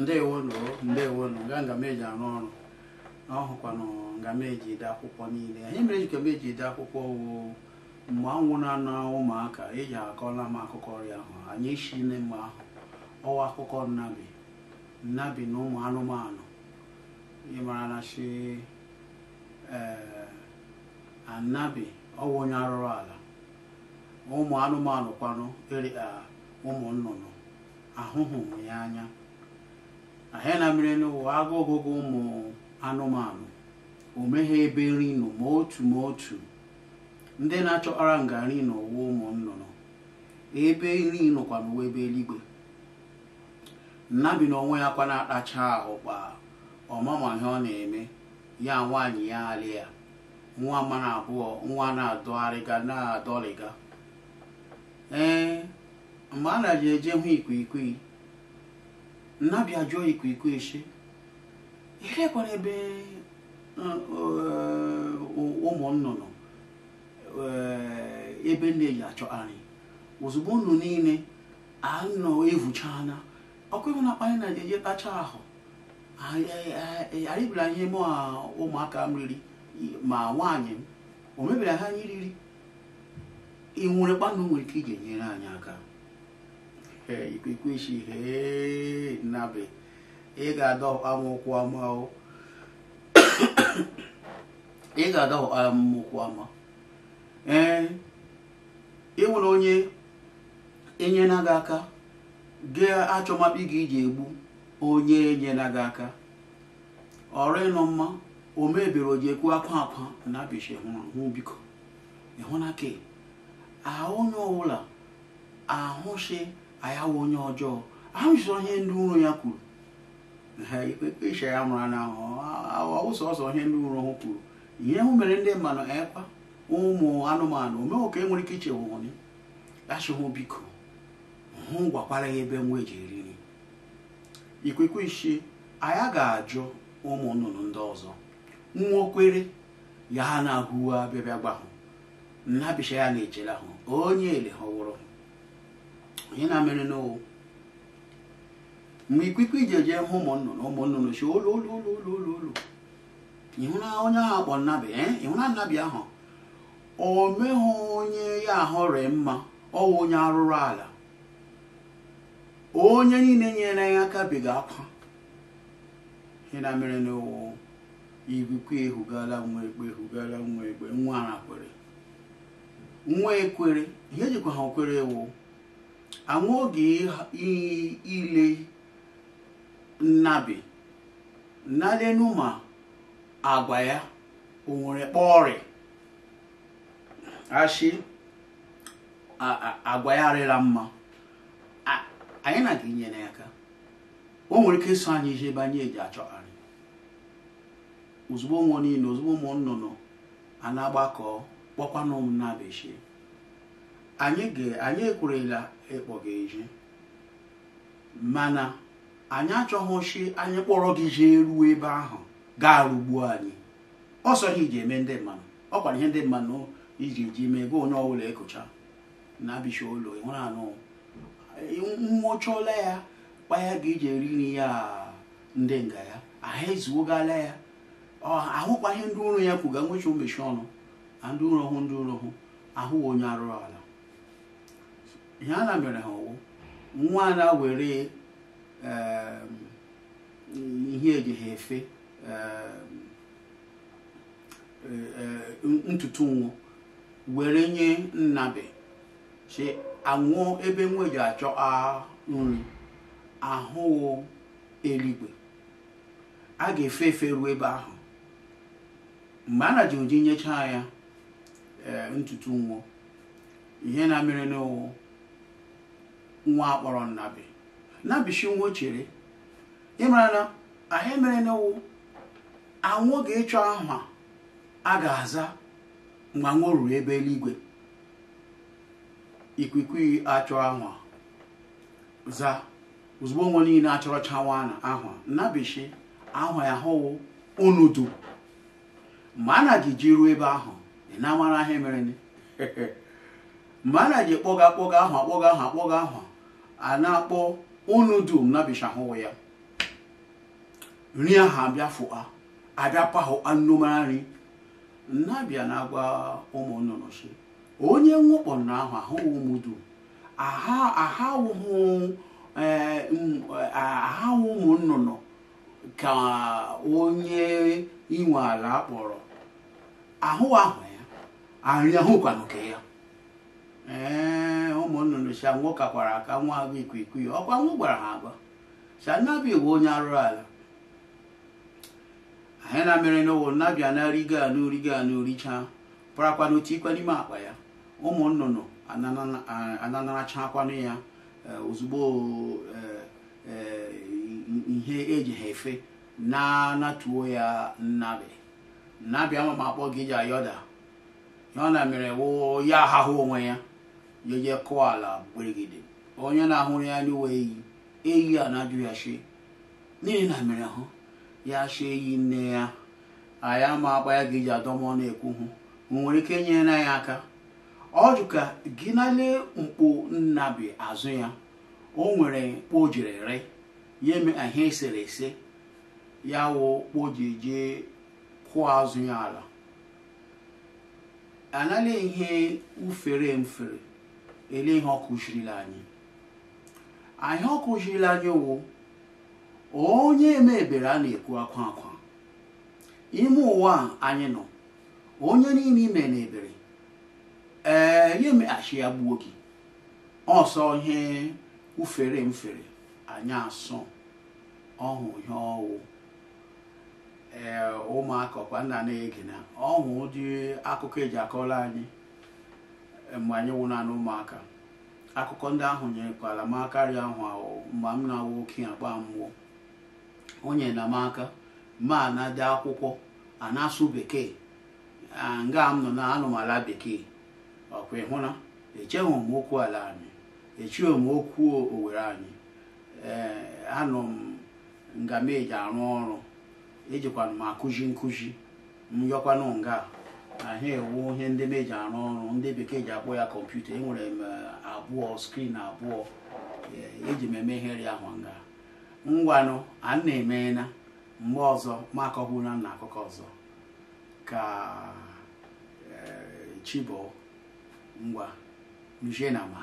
ndewo ndewo nụ ga ngam arụ ọrụ na ọhụkwanụ ngam ede akwụkwọ niile anyị mere jikwa m eji ede akwụkwọ woo mgbe anwụ na-anọ ụmụaka eji akọla m akụkọ ọrịa ahụ anyị isi nne ahụ ọwa akụkọ nnabi nnabi na ụmụ anụmanụ ịmara na chi ee anabi ọwụ onye arụrụ ala ụmụ anụmanụ kwanụ eri ụmụ nnụnụ ahụhụ ya anya ahịa na mmiri n'ụwa agụ ọgụgụ ụmụ anụmanụ o meghị ebe nri nọ ma otu ma otu ndị na-achọkpara ngarị n'ụwa ụmụ nnụnụ ebe nri nọkwa n'ụwa ebe eluigwe nnabi na onwe ya kwa na-akpacha ahụ kpa ọmama ihe ọ na-eme ya nwaanyị ya alị ya nwa mmanụ abụọ nwa na-adọgharịga na-adọlịga ee mgbe a na ji eje hụ ikwikwii nnabi ajụọ ikwikwụ echi ilekwara ebe eh, eh, ụmụ nnụnụ eh, ebe nne ji achọ anyị ozugbo unu niile anọ evuchana ọkụ ịhụ na akpanyị na eje tacha ahụ arịbịara anyị mụ ụmụaka m riri ma nwaanyị m o mebiri ha anyị riri ị nwere kpanụ nwere ike ị ga-enyere anyị aka ikwekwechi henabe ị ga-adọhụ amaụkwụ ama ị ga-adọhụ amaụkwụ ama ee ịnwere onye enyela gị aka gị achọmakpi gị iji egbu onye enyela gị aka ọrụ ịnọ mma o mebere o ji ekwu akwa akwa na bishi hụ biko ịhụ na ke ahụ onye ọbụla ahụshi anyị wụ onye ọjọọ ahụsọ ndị ụrụ ya kwuru ikpe ya mụrụ na ụzọ ihe ndị ụrụ ha kwuru ihe hụ mere ndị mmanụ ekwa ụmụ anụmanụ omewo e nwere ike ichewụwụnye achụhụ biko hụ gwakwara ya ebe nwa eji nri ikwekwe ishi anya ga-ajụ ụmụ nnụnụ ndị ọzọ nwa okwere ya na-ahụwa bịabịa gbahụ nnabicha ya na-echere ahụ onye ele ha ihe na-amere n'ụwa mgbe ikwiku ije jee hụ ụmụ nnụnụ ụmụ nnụnụ chi olu olu olu olu olu olu onye ahụ akpọ nnabi eh? ịhụra nnabi ahụ o meghị onye ya ahụrị mma ọwụ onye arụrụ ala onye niile nyere ya aka biga akwa ihe na mere n'ụwa igwukwu ehugala nwa ekpe ehugala nwa ekpe nwa ara kwere nwa ekwere ihe jikwa ha okwere ewu anwụ oge anwụghị ile nnabi nalenuma agwa ya o nwere kpọrị asị agwa ya arịla mma anyị na-aga inyere ya aka o nwere ike ịsụ anyị ije ebe anyị eji achọgharị ozugbo ụmụ niile ozugbo ụmụ nnụnụ a na-agbakọ kpọkwanụ m anyị ekwerela ịkpọ gị eji mana anyị achọghị chi anyị kpọrọ gị jee ruo ebe ahụ gaa rugbuo anyị ọsọ gị ji eme ndị mmanụ ọ kwara ihe ndị mmanụ iji ji mee gị onye ọbụla ekụcha na-abịcha ụlọ ịhụrụ anụ nwụchụọla ya kpaya gị iji eri nri ya ndị nga ya ahụ ezuogala ya ahụkwa ihe ndị ụrụ ya kwuga nwechụ mmechi ọnụ na ndị ụrọ hụ ndị ụrọ hụ ahụ onye arụrụ ala ihe a na mere ha nwa na were um, ihe ejighị efe um, e, e, ntutu nwụ were nye nnabe si anwụọ ebe nwa eji achọ nri ahụ eluigwe a ga-efe efe ruo ebe ahụ mgbe a na ji ụdị nyechaa ya um, ntutu nwụ ihe na-amere n'ụwụ nwa akpọrọ nnabi nnabishi nwa chere ịmara na ahụ emere n'wu anwụ ga-echu aha a ga-aza mgbe anwụ ruru ebe eluigwe ikuku achọ ahụ za ozugbo nwa niile achọrọ chawa ahụ nnabishi ahụ ya hụwụ onudu Mgbe a na-ji ji ruo ebe ahụ ị na-amara ahụ emere mgbe a na-ji kpọga akpọga ahụ akpọga ahụ akpọga ahụ a na-akpọ unu dum nabishahụ ya nri ahụ abịa fụa abịapahụ anụmara nri nnabịa na-agwa ụmụ nnụnụ si onye nwụkpọ ahụ ahụghị ụmụ dum ahahụ eh, eh, ụmụ nnụnụ ka onye inwe ala akpọrọ ahụ ahụ ya arịa ahụkwanụ nke ya ee eh, ụmụ nnụnụ si anwụ kakwara aka nwa agụ ikwikwii ọkwa nwụ gwara ha agwa si anabi bụ onye arụrụ ala ahịa na mere n'ụwa nnabịa na-arigo anụ rigo anụ richaa pụrakwanụ tikwa n'ime akpa ya ụmụ nnụnụ akwanụ ya eh, ozugbo eh, eh, ihe eji ha efe na-anatuo ya nnabi nnabịa ama ma akpọ gị ji ayọda ya ọ na mere wụ ya ahahụ onwe ya jee kụọ ala gberigide onye na-ahụrụ ya n'uwe eyi eyi a na-ajụ ya shie n'ihi na mere hụ ya shie eyi nne ya anyị ama akpa ya ga iji adọmọ na-ekwu hụ nwere ike nyere ya aka ọ jụ ka gị nalee mkpo nnabi azụ ya o nwere mkpo jiri re ya eme ihe eserese ya wụ kpo ji kụọ azụ ya ala anaghị ihe ufere mfere ele ihe ọ kụzirila anyị anyị ọ kụzirila anyị wụ onye emebere a na-ekwu akwa akwa ime ụwa anyị nọ onye niile ime na ebere ee ya emeghachi ya gbuo gị ọsọ ihe ufere mfere anyị asọ ọhụ ihe ọwụ ee ụmụaka ọkwa nna na-ege ọhụ ụdị akụkọ eji akọrọ anyị mgbe anyị nwụrụ anụ ụmụaka akụkọ ndị ahụ nyerekwala m aka arịa ahụ ahụ mgbe m na-awụ okenye agba mmụọ onye na m aka ma na-ade akwụkwọ a na-asụ bekee nga m nọ na anụmala bekee ọkwa ịhụna echeghị m okwu ala anyị echighị m okwu owere anyị ee anọ m nga m eji arụ ọrụ ejikwana m akụzi nkụzi m yọkwanụ nga ahịa ewu ihe ndị eji arụ ọrụ ndị bekee ji akpọ ya kọmputa enwere m um, abụọ skrin abụọ eji e m eme ihe ahụ nga ngwanụ a na-emena mgbe ọzọ ma akọbụla na akụkọ ọzọ ka um, chibo ngwa mjenama